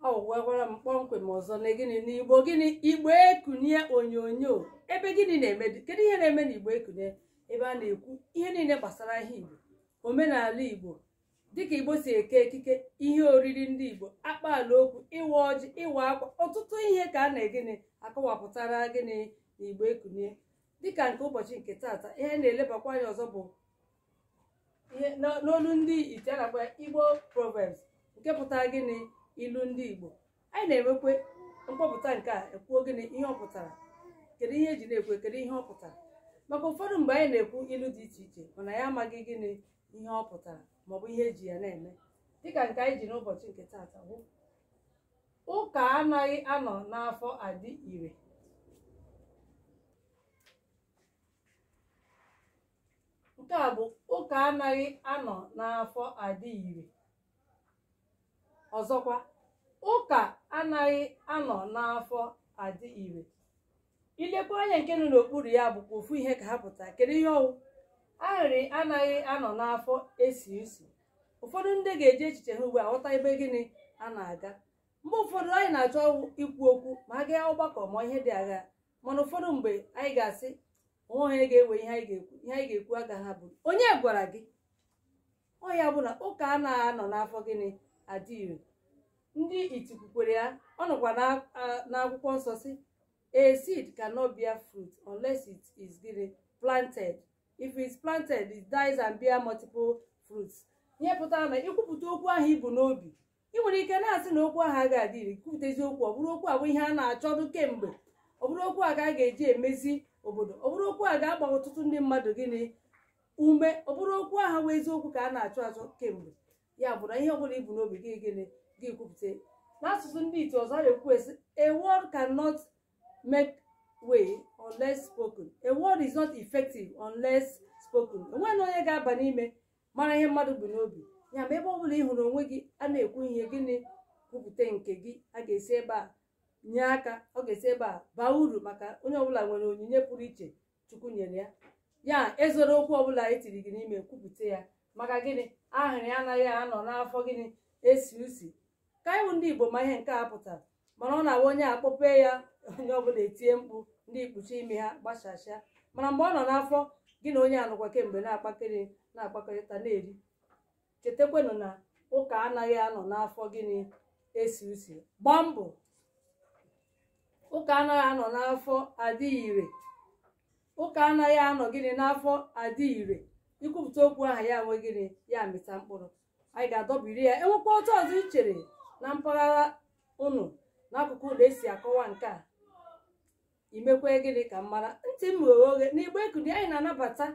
ọ gwara m kpọmkwem ọzọ na gịnị n'igbo gịnị igbo ekunye onyonyo ebe gịnị na-eme kedu ihe na-eme na igbo ekunye ebe a na-ekwu ihe niile gbasara ihe igbo omenala igbo dịka igbo si eke ekike ihe oriri ndị igbo akpaala okwu ịwa ọjị ịwa akwa ọtụtụ ihe ka a na-egịnị akọwapụtara gịnị na igbo ekunye dịka nke ụbọchị nke taata ihe na-elebakwa anya ọzọ bụ ihe n'olu ndị ite na igbo proverbs nke pụtara gịnị ilu ndị igbo anyị na-enwekwe mkpọpụta nke a ekwuo gịnị ihe ọ pụtara kedu ihe eji na-ekwe kedu ihe ọ pụtara maka ụfọdụ mgbe anyị na-ekwu ilu dị iche iche mana ya amaghị gịnị ihe ọ pụtara maọbụ ihe eji ya na-eme dịka nke anyị ji n'ụbọchị nke taata bụ ụka anaghị anọ n'afọ adị ire nke a bụ ụka anaghị anọ n'afọ adị ire ọzọkwa ụka anaghị anọ n'afọ adị ire ilekwa anya nke nọ n'okpuru ya bụkwa ofu ihe ka ha pụta kedu ihe ọwụ ahịrị anaghị anọ n'afọ esi esi ụfọdụ ndị ga-eji echiche ha ugbu a ghọta ebe gịnị a na-aga mgbe ụfọdụ anyị na-achọ ikwu okwu ma a gaa ọgbakọ ma ihe dị agha mana ụfọdụ mgbe anyị ga-asị onwe onye ga-ewe ihe anyị ga-ekwu ihe anyị ga-ekwu ha bụ onye gwara gị ọ ya bụ na ụka anaghị anọ n'afọ gịnị adị ire ndị itiku kwere ya ọ nọkwa n'akwụkwọ nsọ si a seed cannot bear fruit unless it is planted if it is planted it dies and bear multiple fruits ihe pụtara na ikwupụta okwu ahụ ibu n'obi ị nwere ike na-asị na okwu ahụ ga adị iri kwupụtazi okwu ọ bụrụ okwu a bụ ihe a na-achọdụ kemgbe ọ bụrụ okwu a ga-aga eji emezi obodo ọ bụrụ okwu a ga-agba ọtụtụ ndị mmadụ gịnị ume ọ bụrụ okwu aha bụ eziokwu ka a na-achọ achọ kemgbe ya bụ na ihe ọbụla ibu n'obi gị gịnị ga-ekwupụta n'asụsụ ndị ite ọzọ na-ekwu esi a word cannot make way unless spoken a word is not effective unless spoken enweghị onye ga-aba n'ime mara ihe mmadụ bụ n'obi ya ma ebe ọ bụla ị hụrụ onwe gị a na-ekwu ihe gịnị kwupụta nke gị a ga-esi ebe a nye aka ọ ga-esi ebe a baa uru maka onye ọbụla nwere onyinye pụrụ iche chukwu nyere ya ya ezoro okwu ọbụla etiri gị n'ime kwupụta ya maka gịnị ahịrị anaghị anọ n'afọ gịnị esi usi ndị igbo ma ihe nke a pụtara mana ọ na-awa onye akpọpee ya onye ọbụla etie mkpu ndị ikpuchi ime ha gbachasịa mana mgbe ọ nọ n'afọ gị na onye anụkwa kemgbe na-akpakịrị na-akpakọrịta na-eri chetakwanụ na ụka anaghị anọ n'afọ gịnị esi usi gbaa mbọ ụka anaghị anọ n'afọ adịghị ire ụka anaghị anọ gịnị n'afọ adịghị ire ikwupụta okwu aha ya nwe gịnị ya mịta mkpụrụ anyị ga-adọbiri ya enwekwa otu ọzọ ichere na mpaghara unu n'akụkụ ụlọ esi akọwa nke a imekwe gịnị ka m mara ntị m ghe oghe na igbe ekuni anyị na-anabata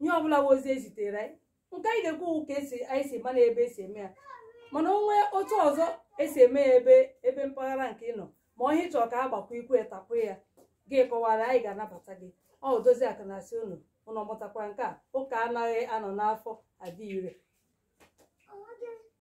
ihe ọbụla wozi ezitere anyị nke anyị ga-ekwu ka esi anyị si mana ebe esi eme ya mana onwe otu ọzọ esi eme ya ebe ebe mpaghara nke ị nọ ma ọ ihe chọrọ ka a gbakwa ikwe etapụ ya gị kọwara anyị ga-anabata gị ọ dozi akụ na asị unu unu mụtakwara nke a ụka anaghị anọ n'afọ adị ire